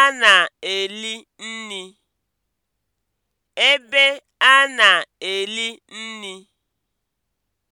a na-eli nri. ebe a na-eli nri.